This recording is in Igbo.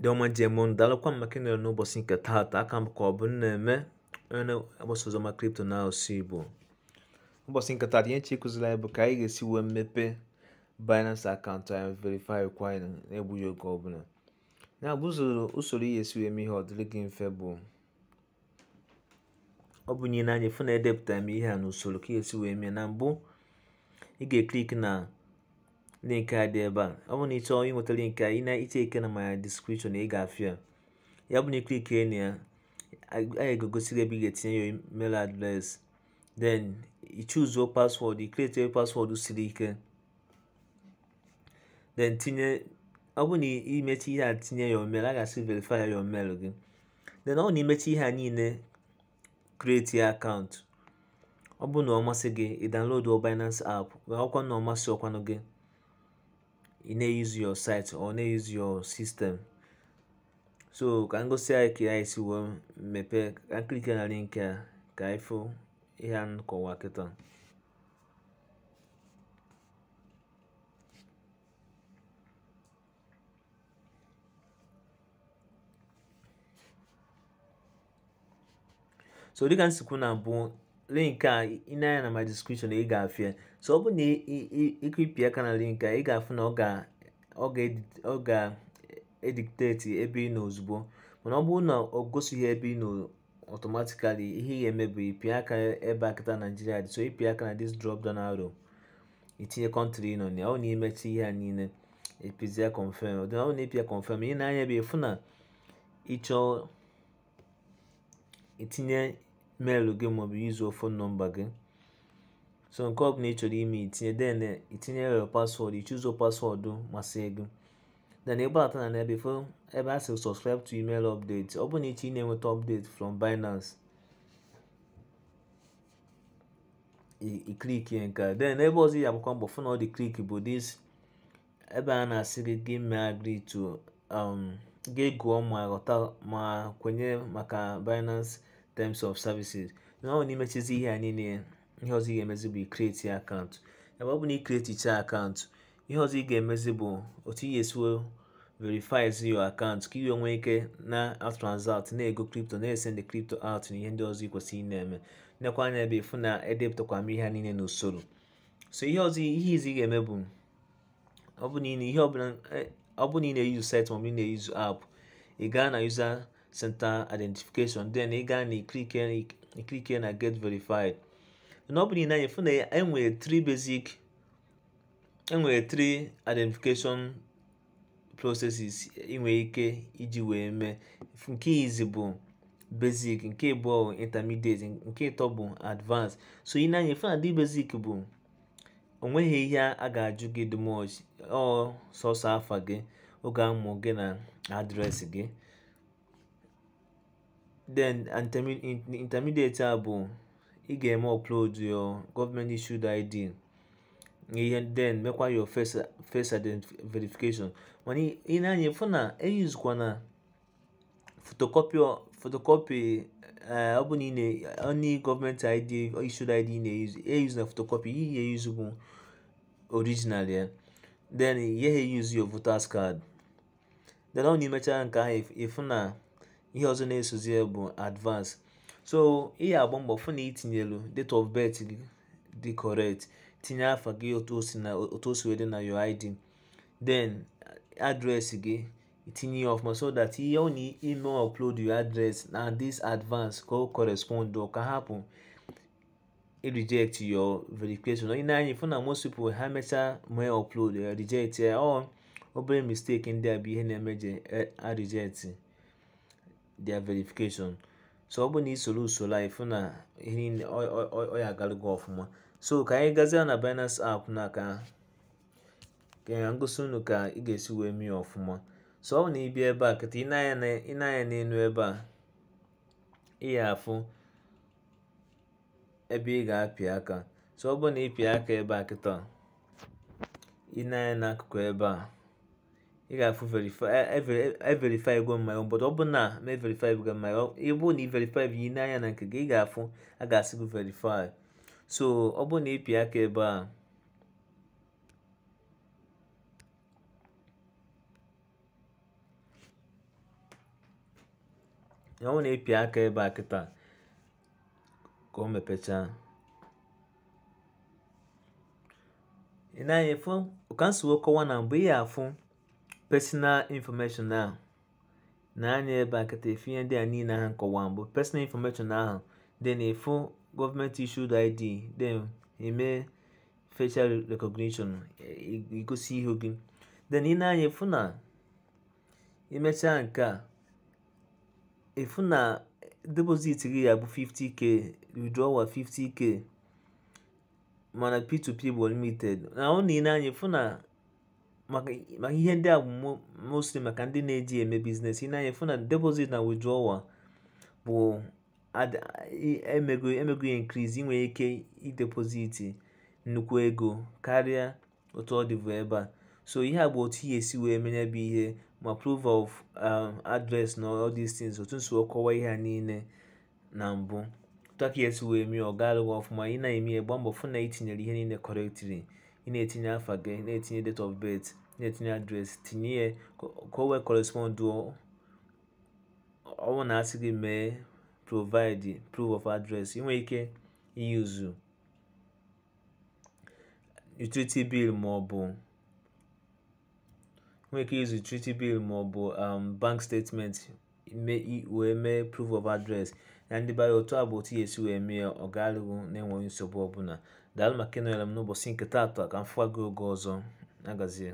ndị ọma ji eme dalụkwa m maka ịnọrọ n'ụbọchị nke taata aka m ka ọ bụ na-eme onye na-agbasa kripto na asụsụ igbo ụbọchị nke taata ihe chi kụziri anyị bụ ka anyị ga-esi wee mepee binance akaụntụ anyị verify kwa anyị na-egbughị oge ọbụla ya bụ usoro ihe esi wee mee ihe ọ dịrị gị mfe bụ ọ bụ nye n'anya fụ na edepụtara m ihe a n'usoro ka ihe esi wee mee na mbụ ị ga-eklik na link a dị ebe a ọ bụrụ na ị chọọ ịnweta link a ị na eche ike na my description ị ga-afụ ya ya bụ na iklikie na ya anyị ga-egosi gị ebe ị ga-etinye ya email adreesị then ichuzuo paswọdụ ikretie paswọdụ siri ike then tinye ọ bụrụ na imechi ihe a tinye ya email a ga-asị verify ya email gị then ọ bụrụ na imechi ihe a niile kreti ya akaụntụ ọ bụrụ na ọ masị gị ị download Binance app ọkwa na ọ masị ọkwanụ gị ị e na use your site or na use your system so ka ngosi gosi anyị ka anyị si wee mepee ka nkirike na link a ka anyị fụ nkọwa kịta so dịka nsikwu na mbụ link a ịnanya na ma description ị ga-afụ ya so ọ bụrụ na ịkụpị aka na link a ị ga-afụ na ọ ga-edikteti ebe ị nọ ozugbo mana ọ bụrụ na ọ gosighị ebe ị nọ ihe ga eme bụ ịpịa aka ebe akịta naijiria dị so ịpị aka na this drop down arrow itinye kọntrị nọ na ọ na imechi ihe a niile ịpịzie confirm ọ na ịpịa confirm ị na-anya bụ ịfụ na ịchọọ itinye meelụ gị maọbụ yuzuo fon nọmba gị so nke ọ ọbụla ị chọrọ ime itinye then itinyere paswọọdụ ichuzo paswọọdụ masị gị then ịgbata na ebe fo ebe a sịrị subscribe to email update ọ bụ na iche ị na-enweta update from Binance iklik nke a then ebe ọzọ ya agbakwa mbọ fụ na ọ dị klik bụ this ebe a na-asị gị gị mee agree to um, gị gụọ ma ghọta ma kwenye maka Binance terms of services na ọ na-imechizi ihe a niile ihe ọzọ ị ga-emezi bụ ikreti akaụntụ ebe ọ bụ na ikreticha akaụntụ ihe ọzọ ị ga-emezi bụ otu ị ga-esi verifies your account ka iwe nwee ike na transact na-ego kripto na-esend kripto out na ihe ndị ọzọ ị kwesịrị na-eme nekwa anya ebe ịfụ na edepụtakwa m ihe a niile n'usoro so ihe ọzọ ihe izi ị ga-eme bụ ọ bụ na ị na-eyu site maọbụ ị na-eyuzu app ị gaa na yuza center identification then ị gaa na ikike na get verified na ọ bụ niile anyị fụ na enwere basic enwere 3 identification processes inwere ike iji wee mee nke izi bụ basic nke abụọ intermediate nke ịtọ bụ advanced so ị na-anya fụ na dị basic bụ onweghị ihe a ga-ajụ gị dị much ọ sọsọ afa gị oge amụ gị na adresị gị then intermediate a bụ ị ga-eme upload your government issued ID ihe then mekwa your first identification verification mana ị na-anya fụ na eyizukwa na photocopy photocopy eh, ọ bụ na onye gọọmenti ID issued ID na-eyuzu eyuzu na photocopy ihe eyuzu bụ original ya then ihe eyuzu your voters card then ọ na imechaa nke ahụ ịfụ na ihe ọzọ na-esozi ya bụ advance so ị ya agba mbọ fụ na itinyelu date of birth gị dị correct tinye afa gị otu o wee dị na your id then address gị itinye ya ọfụma so that ihe ọ na-eme upload your address na this advance ka o correspond ka hapụ reject your verification onye na-anya ifu na most people ha mechaa mee upload reject ya ọ obere mistake ndị a bụ ihe na-emeje a reject their verification so ọ bụ na isoro usoro a ịfụ na ihe ọ ya agarugo ọfụma so ka anyị gazie na binance app n'aka ka ngosi unu ka ị ga-esi wee mee ọfụma so ọ bụ na ịbịa ebe a kịta ịnanya n'elu ebe a ị ya afụ ebe ị ga-apị aka so ọ bụ na ịpịa aka ebe a kịta ịnanya n'akụkụ ebe a ị ga-afụ everify ego mmanya obodo ọ bụrụ na ma everify ego mmanya ị bụrụ na ị verify yi n'anya na nke gị ị ga-afụ a ga-asị gị verify so ọ bụrụ na ịpị aka ebe a ọ bụrụ na ịpị aka ebe a kịta ka o mepechaa ị na-anya ọ ka m kọwa na mgbe ị ya afụ personal information ahụ na-anya ebe a kata efu ihe ndị a niile ha nkọwa mbụ personal information ahụ then ịfụ e gọọmenti issued id dị eme facial recognition igosi ihu gị then ị na-anya efu na imechaa nke a efu na e e depozit gị ya bụ 50k withdrawal 50k mana p2p bụ limited na ọ na ị na-anya efu na maka ihe ndị a bụ mostly maka ndị na-eji eme biznes ị na-anya fụ na deposit na withdrawal bụ emego emego ya increase inwere ike idepoziti nnukwu ego karịa otu ọ dịbụ ebe a so ihe a bụ otu ihe esi wee menye bụ ihe ma proof of um, address na all these things otu nso kọwa ihe ha niile na mbụ tụaka esi wee mee ọ ga ọfụma ị na-eme ya gba mbọ fụ na itinyere ihe niile correctly ị na-etinye afa gị na-etinye date of birth na-etinye adreesị tinye ya ka o wee ọnwụ na asị gị mee provide proof of address ị nwere ike iyuzu utility bill ma ọ bụ nwere ike iyuzu utility bill ma um, bank statement wee mee proof of address na ndị bara otu a bụ otu ya esi wee mee ọ ga na-enweghị nsogbu ọbụla daalụ maka ịnọnyere m n'ụbọchị nketa taata ka m fụwa gị oge ọzọ agazie